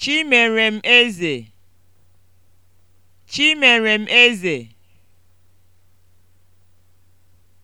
Chimerem Eze Chimerem Eze